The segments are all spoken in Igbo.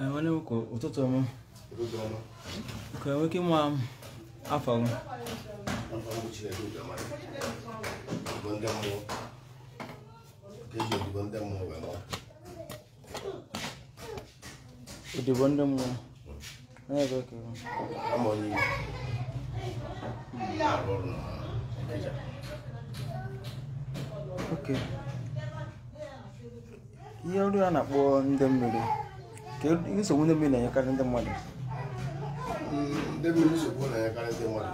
nwanne m ụtụtụ ọma ka enwe ike ịma afọ m odibo ndị mmụọ ebe ka ihe ọrụ a na-akpọ ndị mmiri ka nsogbu ndị mmiri na-enyekarị ndị mmadụ ndị mmiri nsogbu na-enyekarị ndị mmadụ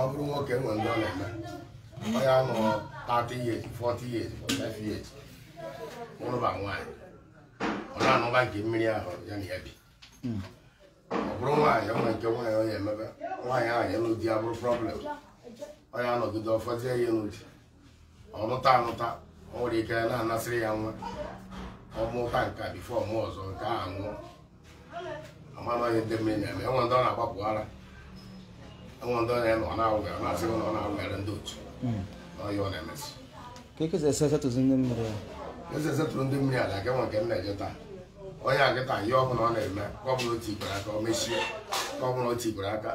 ọ bụrụ nwoke nwe ndị ọ na-eme onye anọ 30 years 40 years 45 years ụlụba nwaanyị ọ e. na-anụba nke mmiri ahụ ya na ya bi ọ bụrụ nwaanyị onwe nke nwaanyị onye emebe nwaanyị ahụ elu di ya bụrụ problem onye anọgide ọfọzie ya elu di ọ nụta anụta o nwere ike na-anasịrị ya nwa ọ nke a bifo mụ ọzọ nke a nwụọ amamaghị ndị mmiri na-eme enwe ndị ọ na-agbapụ ara enwe ndị ọ na-eme ọ na-awụghị ọ na-asị na ndị otu hmm. ọhịa ọ na-emesi eze esetụrụ ndị mmiri ala nke eje taa onye nkịta ihe ọbụla ọ na-eme ka ọbụla otu aka o mechie ka ọbụla otu aka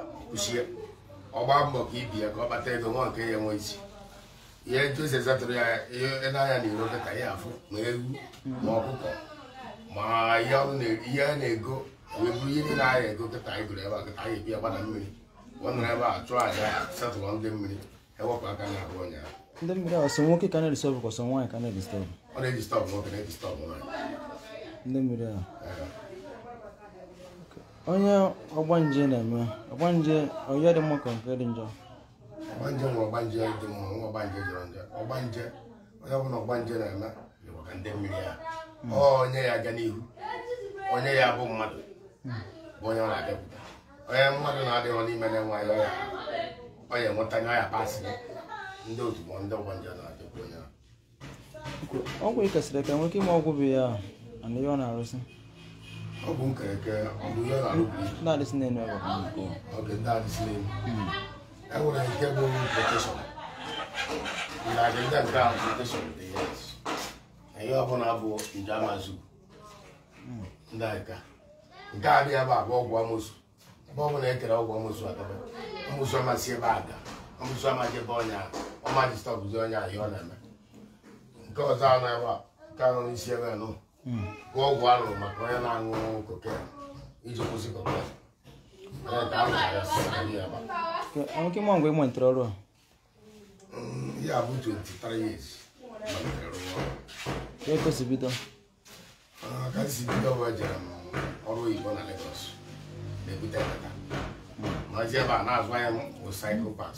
ọ gbaa mbọ ka ibie ka ọ kpata ego nwa nke ya enwe isi ihe nchụsi esatụrụ ya ihe n'anya na-ere dịka ya afụ ma ewu ma ọkụkọ ma ihe a na-ego wee bụrụ ihe niile anya ego kịta anyị gụrụ ebe a kịta anyị ebi agbada mmiri ọ nọrọ ebe a chụọ aja satụrụ ndị mmiri ewepụ aka na abụ ụnyaahụ ndị mmiri a ọsọ nwoke ka na-edistọbụ ka ọsọ nwaanyị ka na-edistọbụ ọ na-edistọbụ nwoke na-edistọbụ nwaanyị ndị mmiri a onye ọgbanje na-eme ọgbanje ọya dị mma ka nke dị njọ ọgbanje nwe ọgbanje dị mma ọgbanje jọrọ nje ọgbanje onye ọbụla ọgbanje na-eme maka ndị mmiri ya hmm. onye ya aga n'ihu onye ya bụ mmadụ hmm. bụ onye ọ na-adịpụta onye mmadụ na-adịghị n'ime na-enwe ya ọya onye enweta ya ọya pasị ndị otu bụ ndị ọgbanje na-adịpụ onye ọgwụ ikesịrị ka nwoke ime ọgwụ bụ ya na ihe ọ na ọgwụ nkereke na ndị adịsị na-enu hmm. enwere nke bụ ndajụda nke ahụ nke a bịa bụ ọgwụ amụsụ ebe ọbụla e kere ọgwụ amụsụ adaba amụsụ amasị ebe ada amụsụ amaghị ebe ọnya ahịa ọ na-eme nke ọzọ a na-ewe nke anọ n'isi ebe nụ ọgwụ arụrụ maka onye na-aṅụ koke iji kwụsị mgbe ya bụ 23 years ekosibido ka si m ọrụ oyibo na Lagos na-ebute ekata mazi ebe a na-azụ ahịa bụ saịkụpas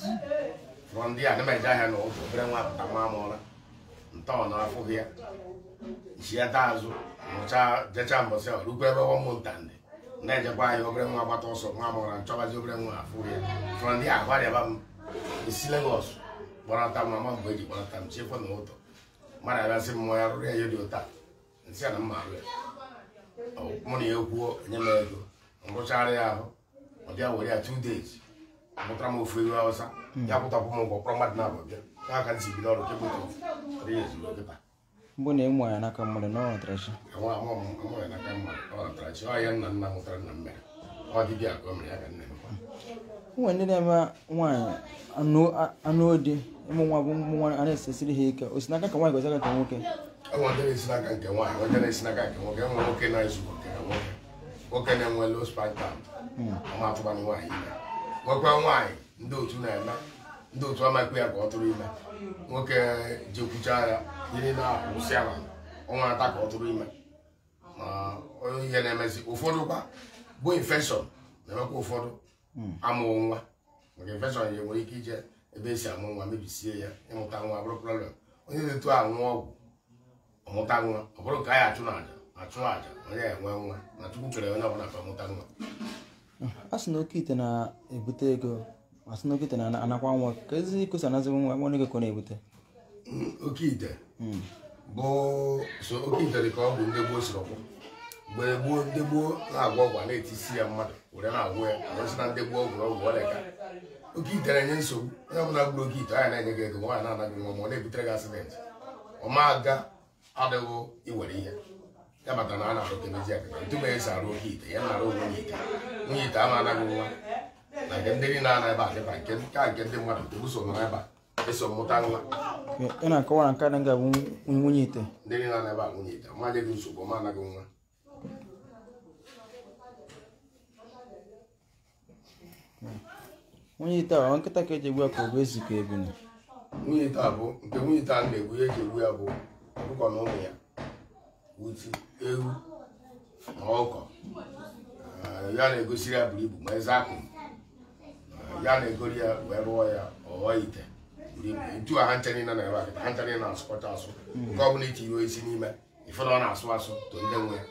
rụọ ndị a na ahịa na ụzọ obere nwa apụta nwa amụọla ntọọ na afụghị ya ji ya taa azụ mbọsị rukwa ebe ndị na-ejekwa ahịa obere nwa gbata ọsọ nwa amụọra nchọbazi obere nwa afụghị ya ndị isi gbarata m ma mgbe eji gbarata m chiekwa na ụtọ mmadụ abịasị m ya rụrụ ya ihe dị ụta nsị a na mma arụ ya mụ na ya ekwuo nye m ego rụchara ya ahụ ọ bịa were ya two days pụtara m ofu ewu awụsa ya pụtakwụ m ụgwọ kpọrọ mmadụ na-abụ ka na ịmụ n'aka mmadụ na ọnọtarachi ọnọtarachi ka ya nna nna nwụtara nna m mere ọ ka ụmụ ndị na-eme nwaanyị anụ odi ịmụ nwa bụ ụmụ nwaanyị a na-esesiri ha ike osinaka ka nwaanyị gozira ka nwoke nwoke na-enwe low spartan hmm. amatụbanụ nwaanyị ime nwekwa nwaanyị ndị otu na-eme ndị otu amakwa ya ka ọ tụrụ ime nwoke jekwucha ya yiri na-akwụsị ala ọnwa ata ka ọ tụrụ ime ma ihe na-emezi ụfọdụ kwa bụ infekshọn na-emekwa ụfọdụ amụọ nwa nke infection ya nwere ike ije ebe esi amụ nwa mebisie ya ịmụta nwa bụrụ problem onye na-etu anwụ ọgwụ ọmụta nwa ọ bụrụ ka anyị achụ n'aja achụ aja onye enwe nwa na chukwu kere onye ọbụla ka ọmụta nwa a sị na oke ite na-ebute ego a sị na oke ite na-anakwa nwa ka ezi ikosi anazighi nwa nwa ego ka ọ na-ebute mm, oke ite mm. bụ so oke ite dị ka ọ bụ ndị gboo siri ọkwụ mgbe gboo ndị gboo na-agwọ ọgwụ na-etisi ya mmadụ were na agwụ ya arụsị na ndị gboo ọgwụrụ ọgwụ ka oke ite nye nsogbu onye ọbụla gburu oke ite anya na-enye gị ego nwaanyị na-anaghị nwa ọ na-ebutere gị asidenti ọma aga adịghị iwere ihe ya maka na a na-akọkemezi esi arụ oke ite ya na-arụ ogwe nwunye ite nwunye ite ama anaghị na nke ndị niile ana ebe adịba nke ka mmadụ ebuso nọ a eso mmụta nwa ị na-akọwara nke nwunye ite ndị niile ana ebe a nwunye ite ọma gị nsogbu ọma anaghị nwa nwunye ite a nkịta ka eji egbu ya ka ọ bụ ezi ka ebini nwunye ite a bụ nke nwunye ite a na-egbu ya eji egbu ya bụ ọkụkọ na ụmụ ya utu ewu na ọkọ ya na-egosiri ya buru ibu ma eze akụ ya na-egori ya wee rụọ ya ọghọ ite ntu a ha nchere na ebe a ha nchere na-asụkọcha asụ nke ọ bụla iti iwe isi n'ime ifere ọ na-asụ asụ to ndị nwe ya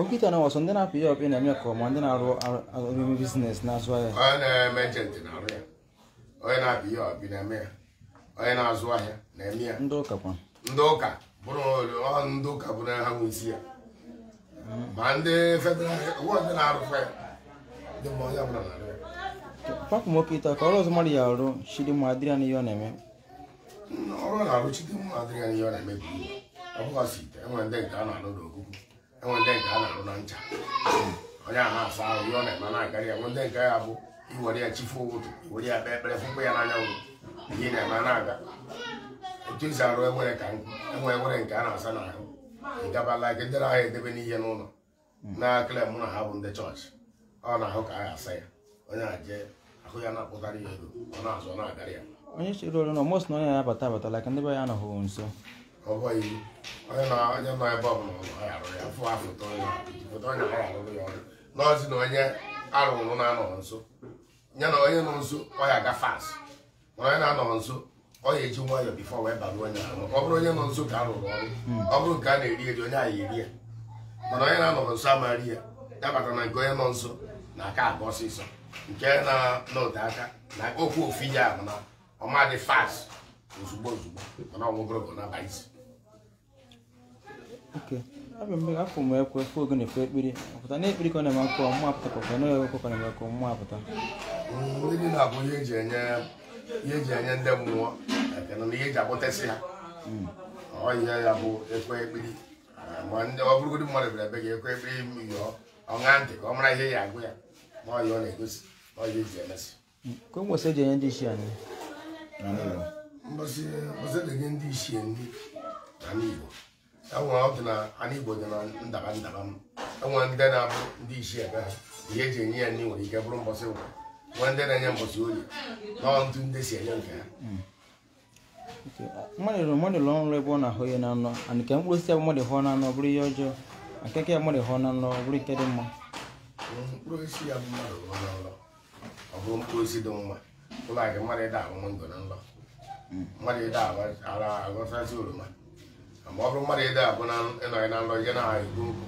ọkịta na ndị na-apụ ya ọkụ na-eme ka ma ndị na-arụ eme bizines na-azụ ahịa onye na-eme ejenti na-arụ ya onye na-apụ ya ọkụ na-eme ya onye na-azụ ahịa na-eme ya ndị ụka kwa ndị ụka bụrụ ndị ụka bụrụ ha isi ya ma ndị federal ndị na ya nwoke ịta ka ọrụ ọzọ mmadụ ya arụ ọ na-eme arụ ọ na enwe ndị nke a na-arụ na ncha onye a na-asa ahụ ihe ọ na-eme na-akarị ya nwe ndị nke ya bụ iwere ya chifu ụtụ iwere ya kpee ekpere fụkwa ya n'anyanwụ ihe na-eme na-aga etu esi arụ enwere ka enwe enwere nke a na-asa na ahụ ịgabala ike ndị na-ahụ edebe n'ihe n'ụlọ na-akịla mụ na ha bụ ndị chọọchị ọ na-ahụ ka a ga-asa ya onye na-eje ahụ ya na-akpụtara ya ego ọ na-azụ na-agarị ya onye chịrị olu na mos na onye na-abata abata like ndị be ya anọghị nso ọ bụghị onye nọ ebe ọbụla ụlọ ọ arụ ya fụ foto onye arụrụ ya ọrụ n'ọzi na onye arụrụ na-anọghị nso ya na onye nọ nso ọ ya aga fas mana onye na-anọghị nso ọ ya eji nwayọọ bifọ wee balụ onye ọ bụrụ onye nọ nso ka ọrụ ọ bụrụ nke a na-eri eri onye ahụ eri ya mana onye na-anọghị nso amaghị ya ya na nke onye nọ nso na aka aga ọsịsọ nke na-anọte aka na okwu ofu ya bụ na ọmadị fas ozugbo ozugbo mana ọnwụ na-abaghịzi oke abịa mgbe afọ m ekwe fụ ogene na ekpere ọpụta na ekpere ka ọ na-eme akwụkwọ mma apụta ka ọ na-eme akwụkwọ na-eme akwụkwọ mma apụta ndị ihe eji enye ihe eji enye ndị mmụọ ekene na ihe eji akpọtasị ha hmm. ọ ihe ya bụ ekwe ekpere ah, ma ndị ọ bụrụgodị mmadụ bịara ebe gị ekwe ekpere ọṅa ntị ka ihe ya agụ ya ma ọ ya ọ e hmm. o eji e enye ndị isi ah, Igbo enwere ọdụ na ana Igbo dị na ndaba ndaba m enwere ndị na-abụ ndị isi ebe ha ihe eji enye ya nwere ike bụrụ mbọsị ụwa nwee ndị na-enye mbọsị oyi na ndụ ndị si enye nke ha mmadụ mmadụ lụọ ọrụ ebe ọ na-ahụ ihe na anọ ana nke mkpụrụ osisi mmadụ hụọ na bụrụ ihe ọjọọ ya mmadụ hụọ na anọ bụrụ ike dị mma mkpụrụ ya mmadụ hụọ na nlọ bụrụ mkpụrụ osisi dị mma ụlọ ma ọ bụrụ mmadụ ide abụ ịnọghị na nrọ gị na-egbu nkụ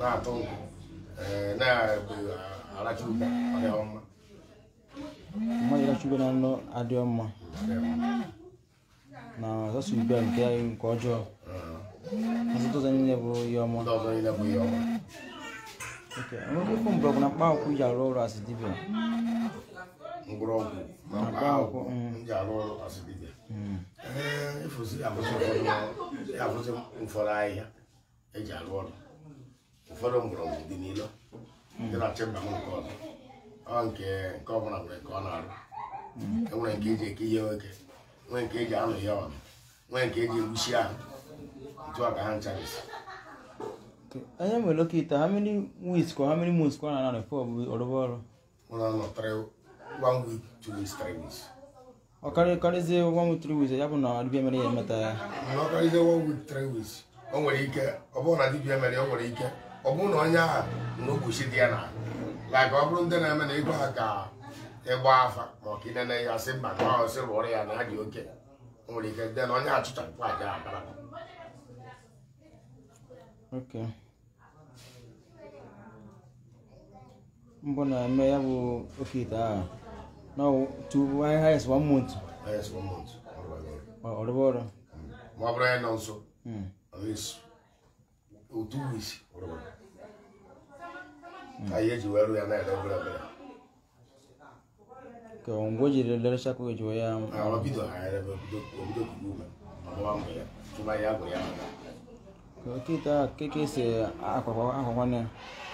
na-atụ nkụ na-aracha ube ọdịghị mma na nrọ adịghị mma na ọsọsọ ube nke nke ọjọọ ọsọtụ ụzọ niile bụ ihe ọma enweghị okwu mgbe ọ bụ na mkpa akwụkwọ ji arụ ọrụ asị dibịa mgbọrọgwụ na mkpa akwụkwọ m ji arụ ọrụ asị dibịa efosiri afụsị ụfọdụ ahịhịa eji arụ ọrụ ụfọdụ mgbọrọgwụ dị n'ilo mm. dị na chemba m nke ọzọ ọ nke nke ọbụla nwere nke ọ na-arụ mm. enwere nke eji eke ihe nwoke nwee nke eji anụ ihe ọnụ e nwee nke eji egbuchi ahụ otu a ka ha ncharisi anya nwere oke ite ha mmiri wis ka ha mmiri mus ka ọ na-anọ n'efe ọbụghị ọrụba ọrụ one week two weeks three weeks ọ oh, karịzie one week three ya bụ na dibia ya emeta ya ọ one week three weeks nwere ike ọ bụrụ na dibia mere o nwere ike ọ bụrụ e, na onye ahụ na ogbochi dị na like ọ bụrụ ndị na-eme na ịgwa ha ka ịgba afa ya na nwere ike na okay na-eme ya bụ oke ite Now, to I highest one month. Highest one month. All the water. My brother also. Hmm. At least oh, two weeks. All the water. I hear you well, and I don't know. Kò ń gbójì lè lọ́rọ́ ṣáko ìjọ ya. Àwọn bídọ̀ ààrẹ bẹ̀ òbídọ̀ kúrú mẹ́. Àwọn wa mọ̀ yá. Tó bá yá àgbọ̀ yá. Kò kí ta kékeré ṣe àpapọ̀ àpapọ̀ náà.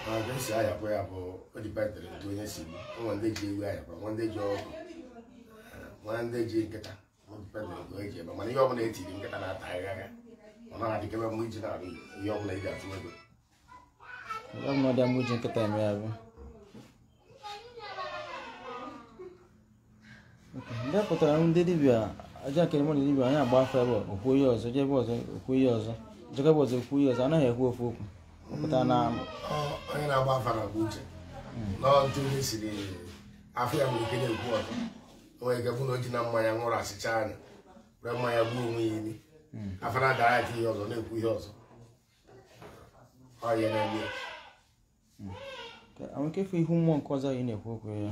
maka esi ayakwa ya bụ ọ etu onye si ụmụ ndị ji ewu ahịa nwa ndị ji ọgụ ndị ji nkịta dịpatara ebe mana ihe ọbụla nkịta na-ata ọ na-adịkebe mgbe iji na-arụ ihe ọbụla atụ ego ndị pụtara ndị dibịa aja nke mmadụ dibịa anyị agba afọ ebe okwu ihe ọzọ jebe ọzọ okwu ihe ọzọ jekebe ọzọ okwu ọzọ anaghị ekwu ofu okwu pụta na hmm. onye na-agba afa hmm. na agba uche n'ọtụ siri afọ ya nwere ike na-ekwu ọtọ onwe ike bụ na o ji na mmanya nwụrụ asịcha anya were mmanya gbuo onwe ya imi hmm. afara na dara aka ihe ọzọ na-ekwu ihe ọzọ ọ ya na-eme ya nwere ike ịfụ mmụọ nke ọzọ ị na-ekwu okwu ya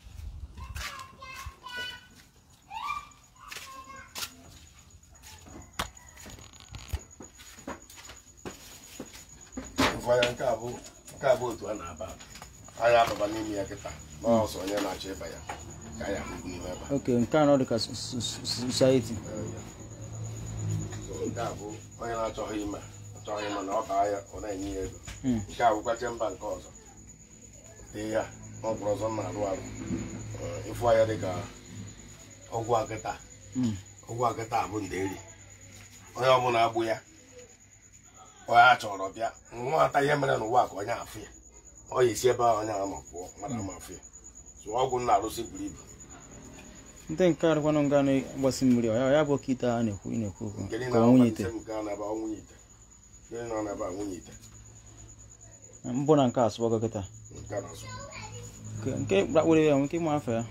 abụ nke abụ otu a na-aba anyị ababa n'ime ya kịta n'ọsọ onye na-achọ ịba ya ka anyị ahụhụ n'ime ebe oke nke anọ dịka society nke a bụ onye na-achọghị ime achọghị ime na ọ baa ya ọ na-enye ya ego hmm. nke a bụkwa chemba nke ọzọ dị ya n'ọgwụrụ ọzọ na-arụ arụ ịfụ ya dịka ọgwụ akịta hmm. ọgwụ akịta bụ ndị eri onye ọbụla agbụ ya a chọrọ bịa nwata ihe mere n'ụwa ka onye afụ ya ọ ya esi ebe ahụ onye ama pụọ mmadụ ama afụ ya so ọgwụ nna arụsị buru ibu ndị nke arụkwanụ nga na-agbasi mmiri ya bụ okite a na-ekwu na-ekwu okwu ka nwunye ite mbụ na nke asụbọgo kịta nke ya ịma afọ ya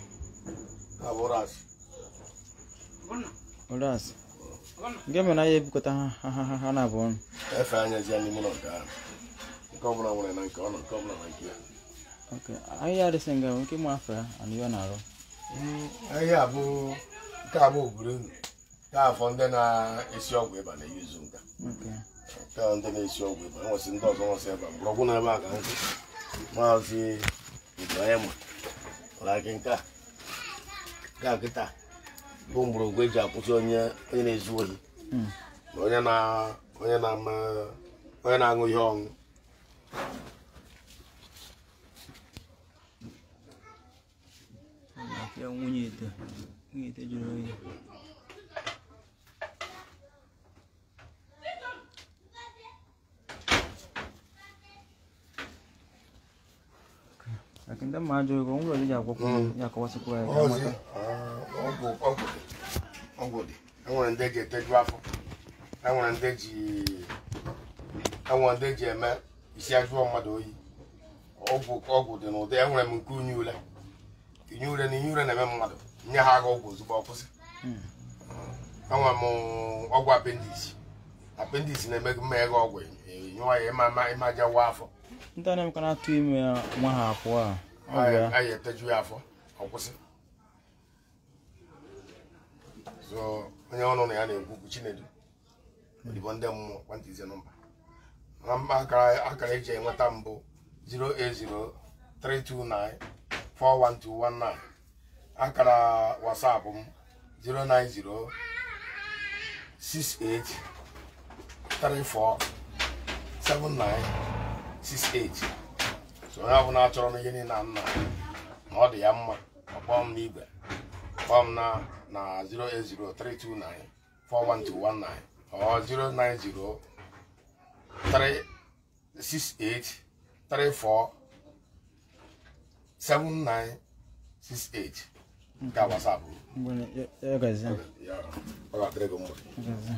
nke mere na ya ebukọta ha na abụọ ọnụ efe anya ji anyị mụ na nke ahụ nke ọbụla nwere na nke ọnụ nke ọbụla na nke ya ahịa adịsị nga nke mụ afọ ya na ihe ọ na-arụ hmm, ahịa abụ nke abụ oburu nke afọ ndị na-esi ọgwụ ịba na-eyuzu nka nke ndị na-esi ọgwụ ịba nwesị ndị ọzọ nwesị ịba mgbọrọgwụ na ebe a ka nkwụ maazị ibrahim ụlọ akị nke a nke a kịta bụ mgbọrọgwụ eji akwụsị onye onye na-ezu ohi na onye na-aṅụ ihe ọṅụ nwunye ite nwunye ite jụrụ oyi akịnda mma ajụrụ gị o nwere ọdịja akwụkwọ ya akọwasịkwa ya ọgwụ dị enwere ndị eji eteju afọ enwere ndị e e e eme isi ajụọ mmadụ oyi ọgwụ ọgwụ dị n'ụdị enwere m nke unyi ule inye ure na inye ure na-eme mmadụ nye ha agha ọgwụ ozugbo ọkwụsị enwere m ọgwụ apendis apendis na-eme mmeghe ọgwụ nyụọ ya ịma aja wa afọ ndị a na atụ ha akwụ a eteju ya afọ ọkwụsị so onye ọnụ na ya na-ekwu okwu chinedu odibo ndị mmụọ kwantịzie nọmba na mba akara eji enweta mbụ 08032941219 akara wasapụ m 09068347968 so onye ọbụla achọrọ n'ihe niile na nna na ọ dị ya mma ọkpọọ n'igwe kpọọ na na 08032941219 or 09036834798 ga whatsapp Bueno, ya gazi. Ya. Ora trego mo. Gazi.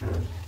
Thank you.